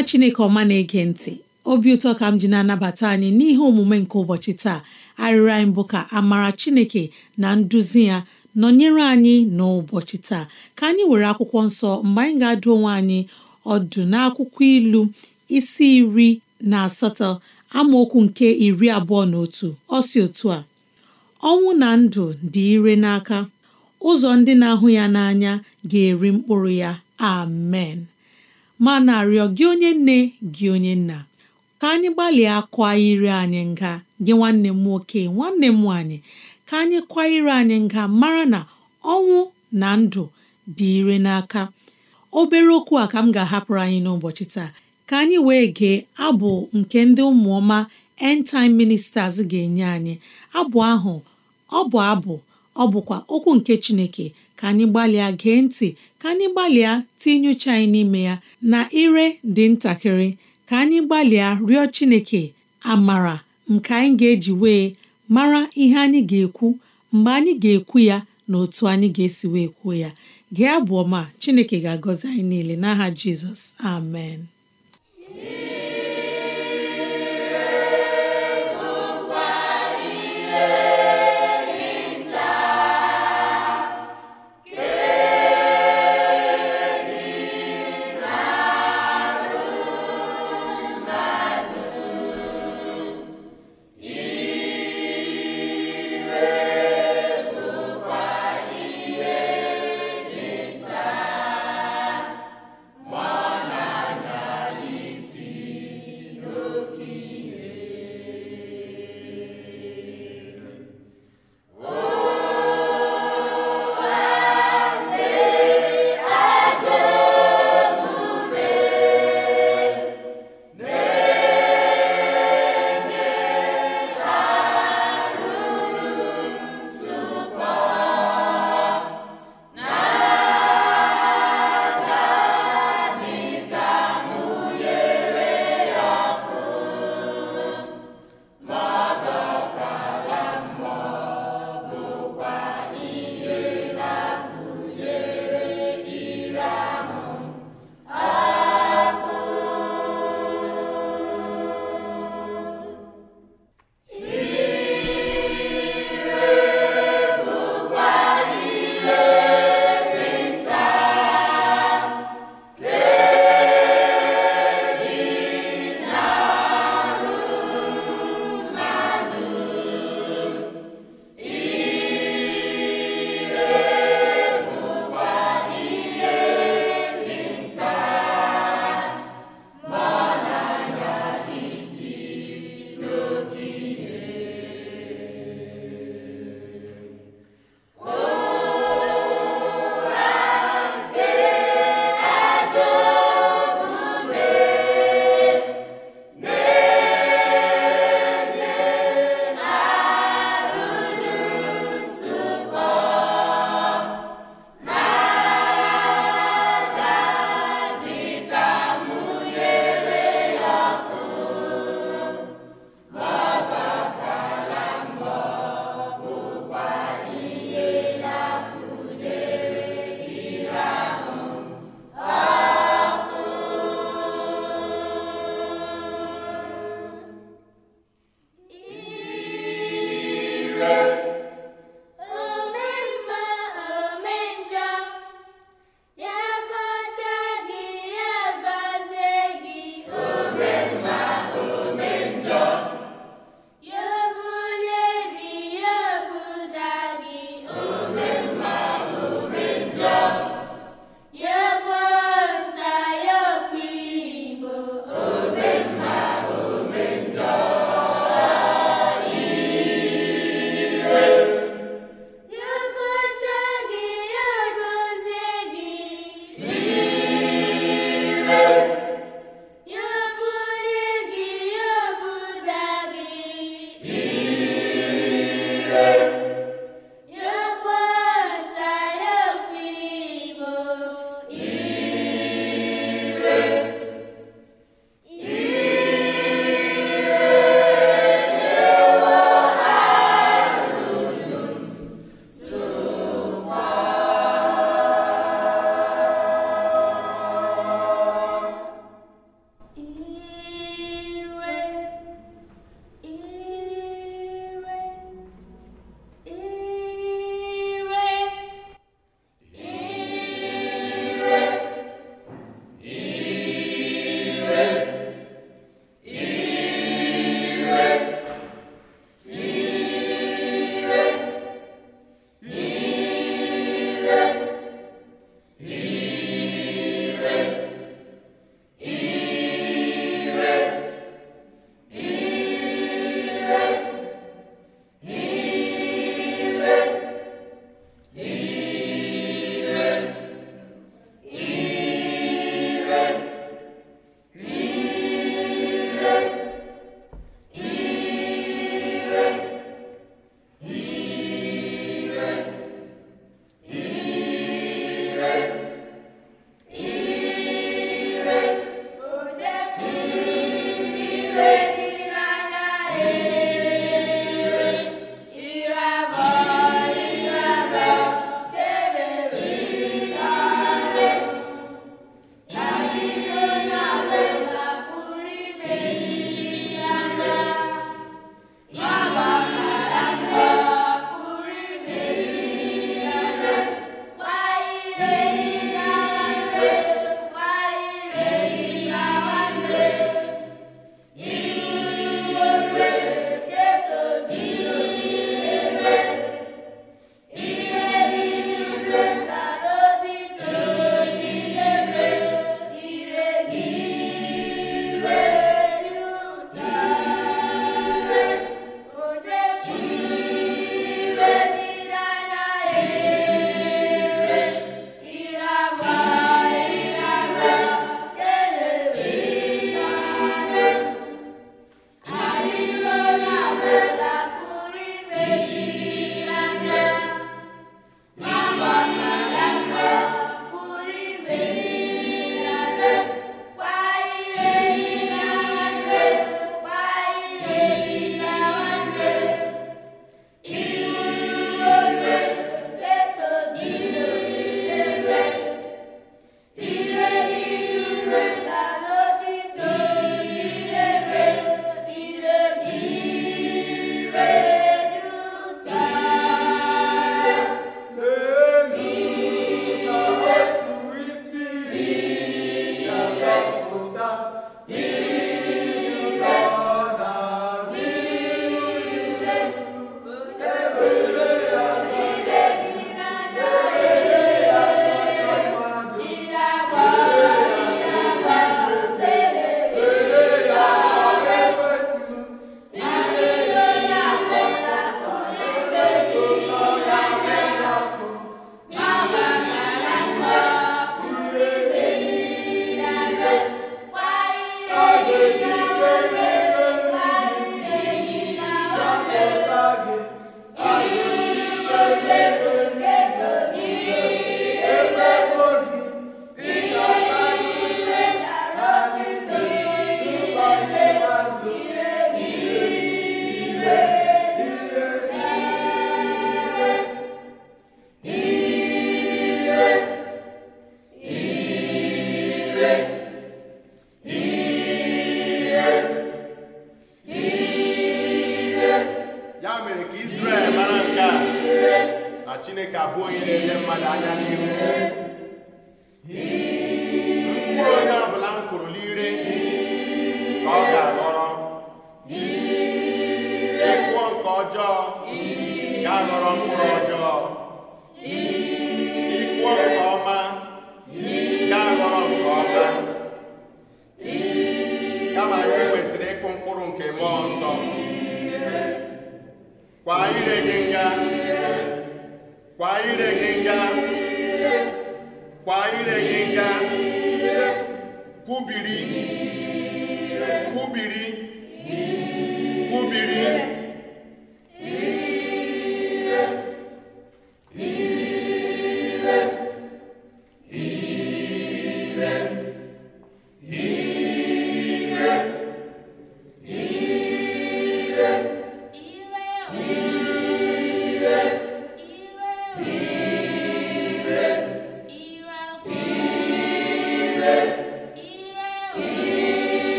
nwa chineke ọma na-ege ntị obi ụtọ ka m ji na-anabata anyị n'ihe omume nke ụbọchị taa arịrịọ anyị bụ ka amara chineke na nduzi ya nọnyere anyị n'ụbọchị taa ka anyị were akwụkwọ nsọ mgbe anyị ga-adụ onwe anyị ọdụ n'akwụkwọ ilu isi iri na asatọ amaokwu nke iri abụọ na otu ọsi otu a ọnwụ na ndụ dị ire n'aka ụzọ ndị na-ahụ ya n'anya ga-eri mkpụrụ ya amen ma na-arịọ gị onye nne gị onye nna ka anyị gbalịa kwa ire anyị nga gị nwanne m nwoke nwanne m nwaanyị ka anyị kwa ire anyị nga mara na ọnwụ na ndụ dị ire n'aka obere okwu a ka m ga-ahapụrụ anyị n'ụbọchị taa ka anyị wee gee abụ nke ndị ụmụọma end ministers ga-enye anyị abụ ahụ ọ bụ abụ ọ bụkwa okwu nke Chineke ka anyị gbalịa gee ntị ka anyị gbalịa tinye uche anyị n'ime ya na ire dị ntakịrị ka anyị gbalịa rịọ Chineke amara nke anyị ga-eji wee mara ihe anyị ga-ekwu mgbe anyị ga-ekwu ya na otu anyị ga-esi wee kwuo ya gị abụọ ọma Chineke ga-agọzi anyị niile n'aha Jizọs amen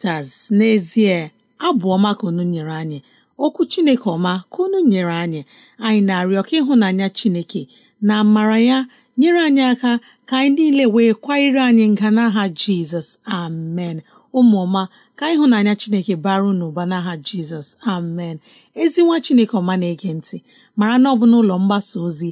sisters n'ezie abụ ọma ka unu nyere anyị okwu chineke ọma ka unu nyere anyị anyị na-arịọ ka ịhụnanya chineke na amara ya nyere anyị aka ka anyị niile wee kwanyere anyị nga n'aha jizọs amen ụmụọma ka ịhụnanya chineke baru n'ụba n'aha jizọs amen ezi nwa chineke ọma na-ege ntị mara na ọ bụ n'ụlọ mgbasa ozi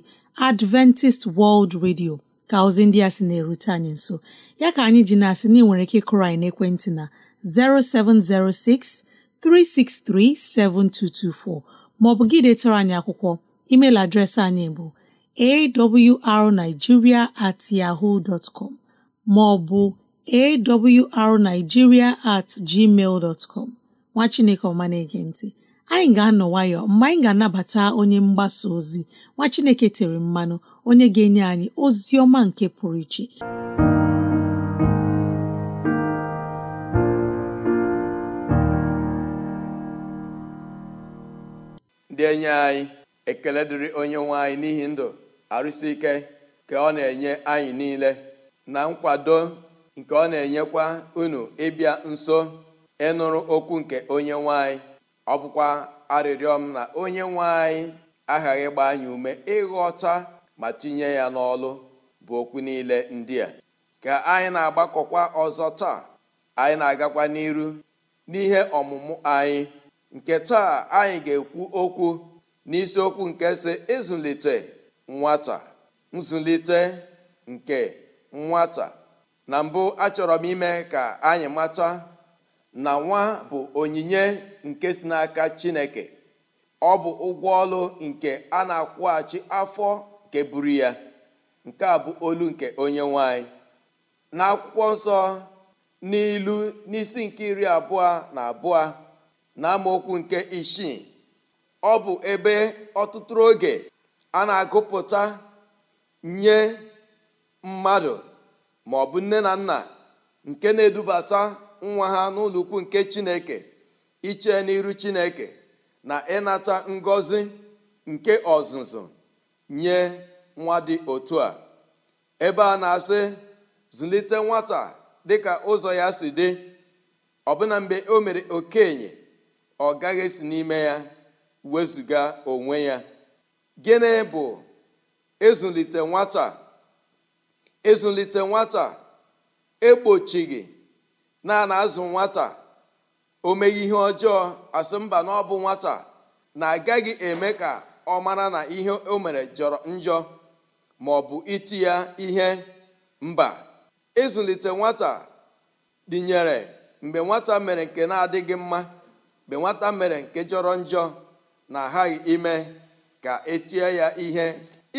adventist world radio ka ozi ndị a sị na-erute anyị nso ya ka anyị ji na-asị na ị nwere ike ịkụrụ anyị n'ekwentị na 07063637224 maọbụ gị detara anyị akwụkwọ email adreesị anyị bụ awrnigeria at yahoo dot com maọbụ awrnigeria at gmail dot com nwa chineke ọma na-ege ntị anyị ga-anọ nwayọ mgbe anyị ga-anabata onye mgbasa ozi nwa chineke tere mmanụ onye ga-enye anyị ozi ọma nke pụrụ iche na-enye anyị ekele dịrị onye nwe anyị n'ihi ndụ arụsị ike ka ọ na-enye anyị niile na nkwado nke ọ na-enyekwa unu ịbịa nso ịnụrụ okwu nke onye nwe anyị ọ bụkwa arịrịọ na onye nwe anyị aghaghị gba anyị ume ịghọta ma tinye ya n'ọlụ bụ okwu niile ndị a ka anyị na-agbakọkwa ọzọ taa anyị na-agakwa n'iru n'ihe ọmụmụ anyị nke taa anyị ga-ekwu okwu n'isiokwu nke si ịzụlite nwata nzụlite nke nwata na mbụ achọrọ m ime ka anyị mata na nwa bụ onyinye nke si n'aka Chineke ọ bụ ụgwọ ọlụ nke a na-akwụghachi afọ nke buru ya nke a bụ olu nke onye nwanyị n'akwụkwọ nsọ n'ilu n'isi nke iri abụọ na abụọ na amaokwu nke isii ọ bụ ebe ọtụtụ oge a na-agụpụta nye mmadụ maọbụ nne na nna nke na-edubata nwa ha n'ụlọ nke Chineke iche n'iru Chineke na ịnata ngọzi nke ọzụzụ nye nwa dị otu a ebe a na-asị zụlite nwata dịka ụzọ ya si dị ọbụna mgbe o mere okenye ọ gaghị esi n'ime ya wezụga onwe ya gịnị bụ ezulite nwata ezulite nwata egbochighị naanị azụ nwata o meghị ihe ọjọọ asị mba na ọ bụ nwata na-agaghị eme ka ọ mara na ihe o mere jọrọ njọ ma ọ bụ iti ya ihe mba ịzụlite nwata dịnyere mgbe nwata mere nke na-adịghị mma mgbe nwata mere nke jọrọ njọ na aghaghị ime ka etie ya ihe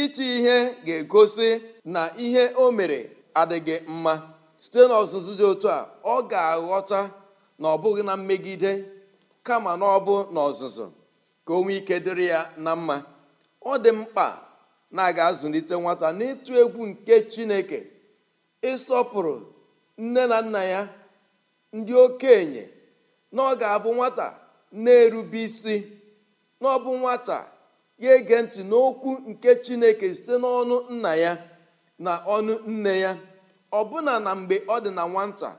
ịchị ihe ga-egosi na ihe o mere adịghị mma site n'ọzụzụ dị otu a ọ ga-aghọta na ọ bụghị na mmegide kama na ọ bụ n'ọzụzụ ka o nwee ike dịrị ya na mma ọ dị mkpa na a ga-azụlite nwata n'ịtụ egwu nke Chineke ịsọpụrụ nne na nna ya ndị okenye na ọ ga-abụ nwata na-erube isi na ọ bụ nwata ya ege ntị n'okwu nke chineke site n'ọnụ nna ya na ọnụ nne ya ọbụna na mgbe ọ dị na nwata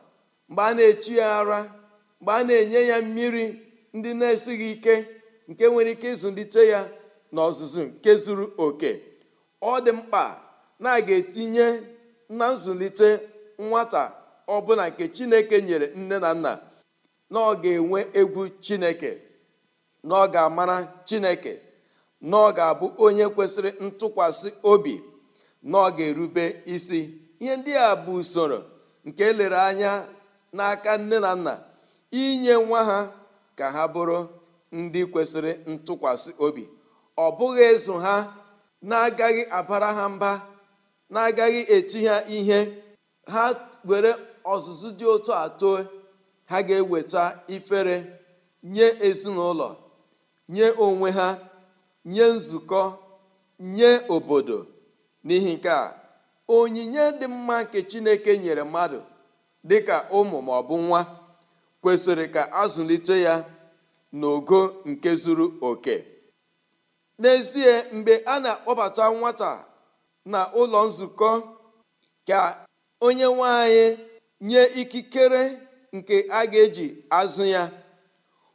mgbe a na-echi ya ara mgbe a na-enye ya mmiri ndị na-esighị ike nke nwere ike ịzụlite ya na ọzụzụ nke zuru oke ọ dị mkpa na a ga-etinye na nzụlite nwata ọbụla nke chineke nyere nne na nna na ọ ga-enwe egwu chineke na ọ ga-amara chineke na ọ ga-abụ onye kwesịrị ntụkwasị obi na ọ ga-erube isi ihe ndị a bụ usoro nke e lere anya n'aka nne na nna inye nwa ha ka ha bụrụ ndị kwesịrị ntụkwasị obi ọ bụghị ezu ha na-agaghị abara ha mba na-agaghị etu ha ihe ha were ọzụzụ dị otu atọ ha ga-eweta ifere nye ezinụlọ nye onwe ha nye nzukọ nye obodo n'ihi nke a onyinye dị mma nke chineke nyere mmadụ dị ka ụmụ ma ọ bụ nwa kwesịrị ka azụlite ya n'ogo nke zuru oke n'ezie mgbe a na-akpọbata nwata na ụlọ nzukọ ka onye nwanyị nye ikikere nke a ga-eji azụ ya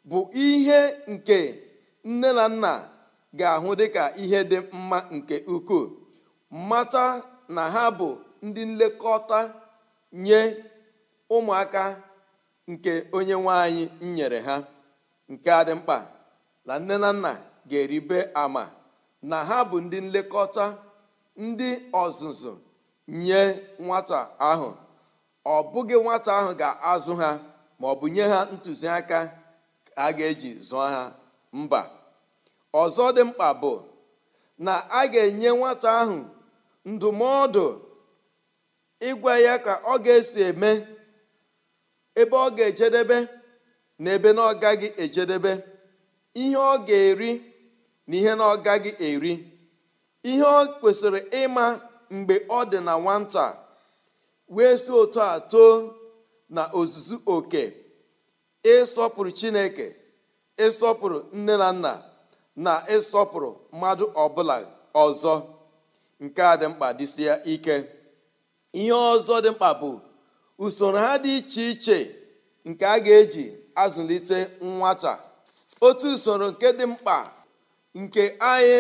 bụ ihe nke nne na nna ga-ahụ dịka ihe dị mma nke ukwuu mata na ha bụ ndị nlekọta nye ụmụaka nke onye nwanyị nyere ha nke adị mkpa na nne na nna ga-eribe ama na ha bụ ndị nlekọta ndị ọzụzụ nye nwata ahụ ọ bụghị nwata ahụ ga-azụ ha ma ọ bụ nye ha ntụziaka a ga-eji zụọ ha mba ọzọ dị mkpa bụ na a ga-enye nwata ahụ ndụmọdụ ịgwa ya ka ọ ga-esi eme ebe ọ ga-ejedebe na ebe na ọ gaghị ejedebe ihe ọ ga-eri na ihe na ọ gaghị eri ihe ọ kwesịrị ịma mgbe ọ dị na nwata wee si otu a too na ozuzu oke ịsọpụrụ chineke ịsọpụrụ nne na nna na ịsọpụrụ mmadụ ọbụla ọzọ nke a dị mkpa dịsịa ike ihe ọzọ dị mkpa bụ usoro ha dị iche iche nke a ga-eji azụlite nwata otu usoro nke dị mkpa nke anyị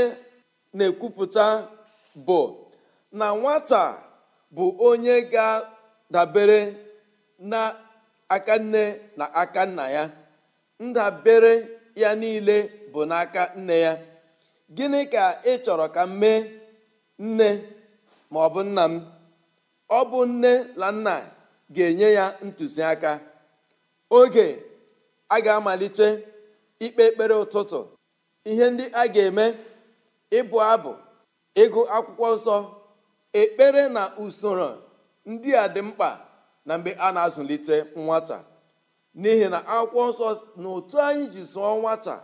na-ekwupụta bụ na nwata bụ onye ga-dabere na nne na aka nna ya ndabere ya niile bụ n'aka nne ya gịnị ka ị chọrọ ka m mee nne ma ọ bụ nna m ọ bụ nne na nna ga-enye ya ntụziaka oge a ga-amalite ikpe ekpere ụtụtụ ihe ndị a ga-eme ịbụ abụ ịgụ akwụkwọ nsọ ekpere na usoro ndị a dị mkpa na mgbe a na-azụlite nwata n'ihi na akwụkwọ nsọ na otu anyị ji zụọ nwata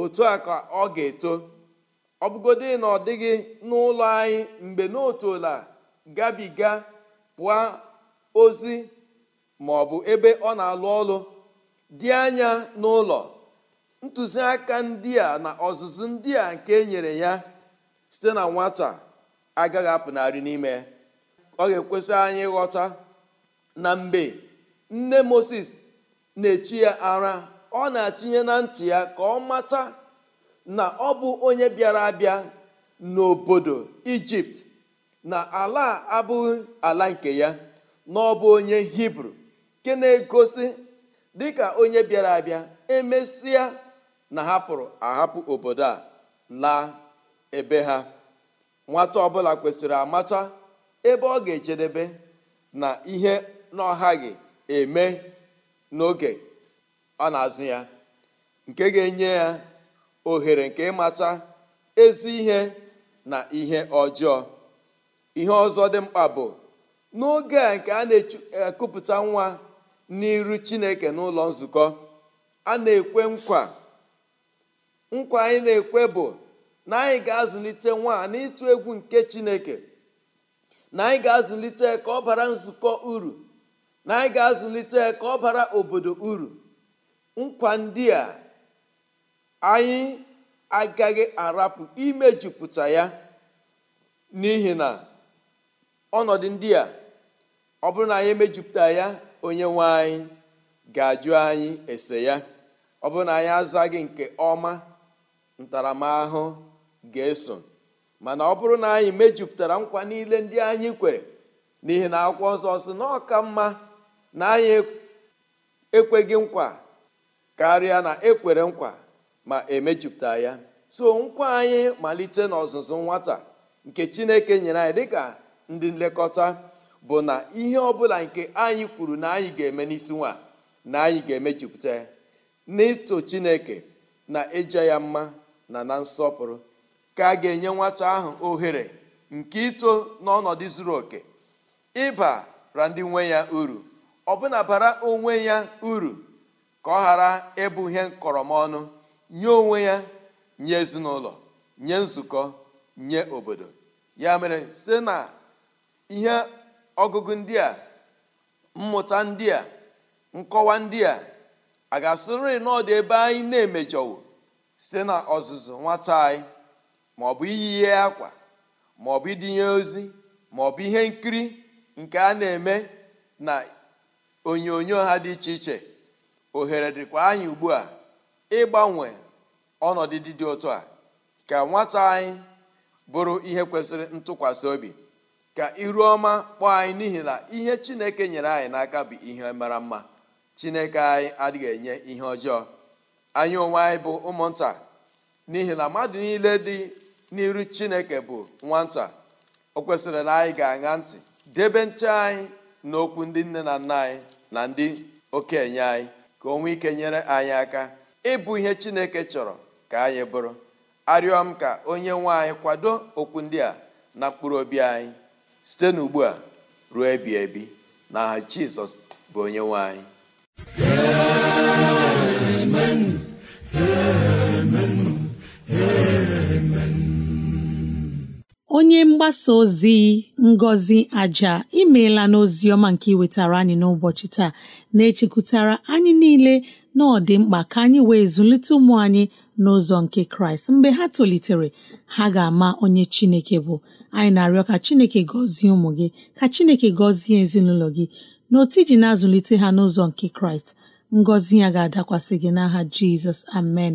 otu a ka ọ ga-eto ọ bụgodị na ọ dịghị n'ụlọ anyị mgbe n'otuola gabiga pụọ ozi ma ọ bụ ebe ọ na-alụ ọrụ dị anya n'ụlọ ntụziaka ndị a na ọzụzụ ndị a nke e nyere ya site na nwata agaghị apụnarị n'ime ọ ga-ekwesị anyị ịghọta na mgbe nne moses na-echi ya ara ọ na-atụnye na ntị ya ka ọ mata na ọ bụ onye bịara abịa n'obodo ijipt na ala abụghị ala nke ya na ọ bụ onye hibru nke na-egosi dịka onye bịara abịa emesịa na hapụrụ ahapụ obodo a laa ebe ha nwata ọbụla kwesịrị amata ebe ọ ga-ejedebe na ihe na gị eme n'oge ọ na-azụ ya nke ga-enye ya ohere nke ịmata ezi ihe na ihe ọjọọ ihe ọzọ dị mkpa bụ n'oge a nke a na-ekupụta e, nwa n'iru chineke n'ụlọ nzukọ a na-ekwe nkwa nkwa anyị na-ekwe bụ na anyị ga-azụlite nwa n'ịtụ egwu nke chineke na anyị ga-azụlite ka ọ bara nzukọ uru na anyị ga-azụlite ka ọ bara obodo uru nkwa ndị a anyị agaghị arapụ imejupụta ya n'ihi na ọnọdụ ndị a ọ bụrụ na anyị emejupụta ya onye nwe anyị ga-ajụ anyị ese ya ọ bụrụ na anyị azaghị nke ọma ntaramahụhụ ga-eso mana ọ bụrụ na anyị mejupụtara nkwa niile ndị anyị kwere n'ihi na akwụkwọ nsọ ọzọ na ọka mma na anyị ekweghị nkwa karịa na ekwere nkwa ma emejupụta ya so nkwa anyị malite n'ọzụzụ nwata nke chineke nyere anyị dịka ndị nlekọta bụ na ihe ọbụla nke anyị kwuru na anyị ga-eme n'isi nwa na anyị ga-emejupụta ya n'ịtụ chineke na ịja ya mma na na nsọpụrụ ka a ga-enye nwata ahụ ohere nke ito n'ọnọdụ zuru oke ịbara ndị nwe ya uru ọbụna bara onwe ya uru ka ọ ghara ịbụ ihe ọnụ nye onwe ya nye ezinụlọ nye nzukọ nye obodo ya mere site na ihe ọgụgụ ndị a mmụta ndị a nkọwa ndị a a ga-asịrị n'ọdụ ebe anyị na-emejọwo site na ọzụzụ nwata anyị ma ọ bụ iyi ihe akwa ma ọ bụ idinye ozi ma ọ bụ ihe nkiri nke a na-eme na onyonyo ha dị iche iche ohere dịkwa anyị ugbu a ịgbanwe ọnọdụ dị dị a ka nwata anyị bụrụ ihe kwesịrị ntụkwasị obi ka iru ọma kpọọ anyị n'ihi na ihe chineke nyere anyị n'aka bụ ihe mara mma chineke anyị adịghị enye ihe ọjọọ anyị onwe anyị bụ ụmụnta n'ihi na mmadụ niile dị n'iru chineke bụ nwata o kwesịrị na anyị ga-aṅa ntị debe ntị anyị na okwu ndị nne na nna anyị na ndị okenye anyị ka o nwee ike nyere anyị aka ịbụ ihe chineke chọrọ ka anyị bụrụ arịọ m ka onye nwe anyị kwado okwu ndị a na mkpụrụ obi anyị site n'ugbu a ruo ebi ebi na aha jizọs bụ onye nwe anyị onye mgbasa ozi Ngọzi Aja imeela n'ozi ọma nke iwetara anyị n'ụbọchị taa na-echekwutara anyị niile na ọ dị mkpa ka anyị wee zụlite ụmụ anyị n'ụzọ nke Kraịst mgbe ha tolitere ha ga-ama onye Chineke bụ anyị na-arịọ ka Chineke gọzie ụmụ gị ka Chineke gọzie ezinụlọ gị n'otu iji na-azụlite ha n'ụzọ nke Kraịst ngọzi ya ga-adakwasị gị n'aha Jizọs amen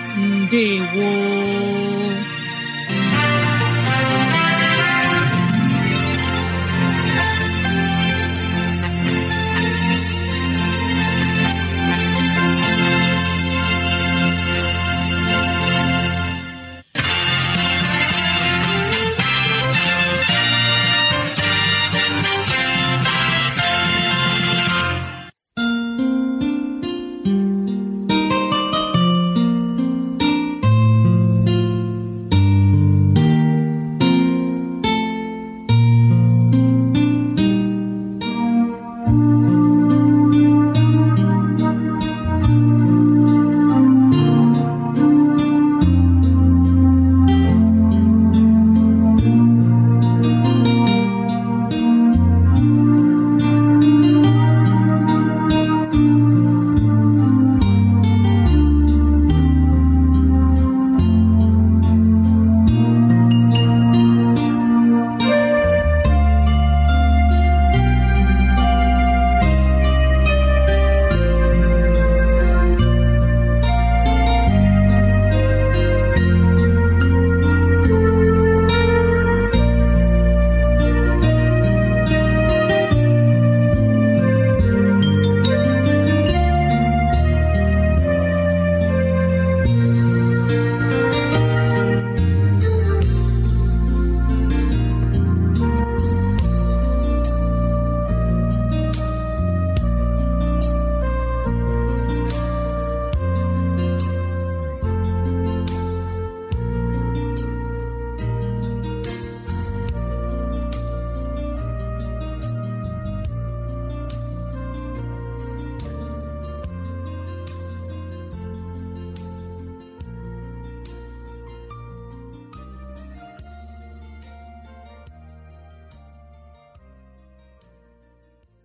woo!